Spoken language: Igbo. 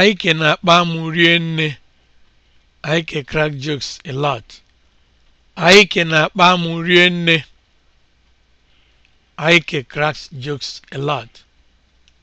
Aike na-akpa amụ rienne. Aike crack jokes a lot. Aike na-akpa amụ rienne. Aike cracks jokes a lot.